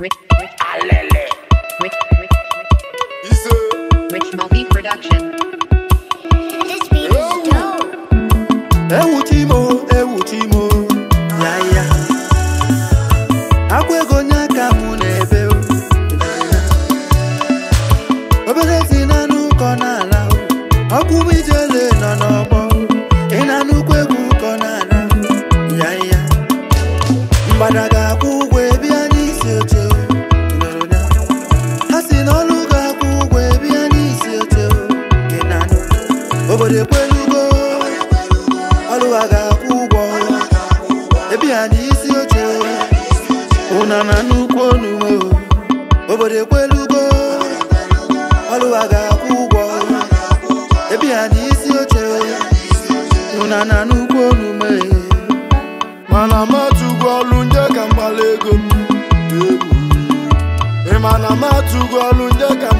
Ewuchi Ise. ewuchi Multi Ya ya. aka mụ n'ebe obere si na n'ala m ijele nọ n'ọgbọ ị na nnukwu Ọlụwa ga-akwụ ụgwọ ebi ha n'isi oche ụna na nnukwu onuwe obodo ekwelugo ọlụ a ga-akwụ ụgwọ ebi ha n'isi oche ụna na nnukwu onume mana matụgo ọlụ nje ka mgbala ego m ịmana matụgo ọlụ nje ka m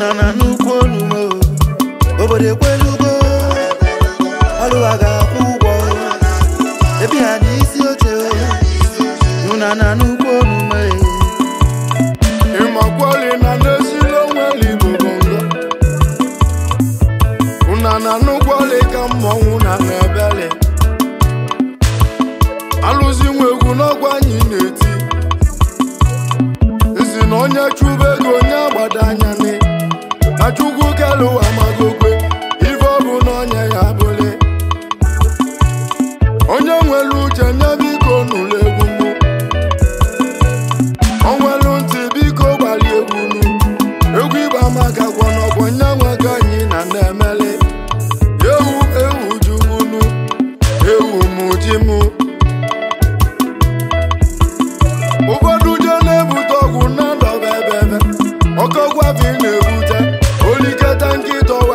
nọ na nnukwu olumo obodo ekwelugo ọlụwa ga-akwụ ụgwọ Ebe ha n'isi oche nụna na nnukwu olume ịmakwali na n'eziri onwe ligbo una na nnukwu ọlị ka mmọnwụ na na-ebeli alụzi nwe egwu n'ọgwụ anyị na-eti nsi na onye chụba ego onye agbada anya n'e ma chukwu kelu ụwa magokwe ife ọbụ n'onye ya abụle onye nwere uche nye biko nụlụ egwu mụ o nwelu ntị biko gbalị egwu nụ egwu ịgba maka gwọnọgwọ nye nwego anyị na na-emele ewu ewu juwunu ewu mụ ji mụ ụfọdụ je na-ebute ọgwụ na ndọba ebe ebe bi na-ebute tranquito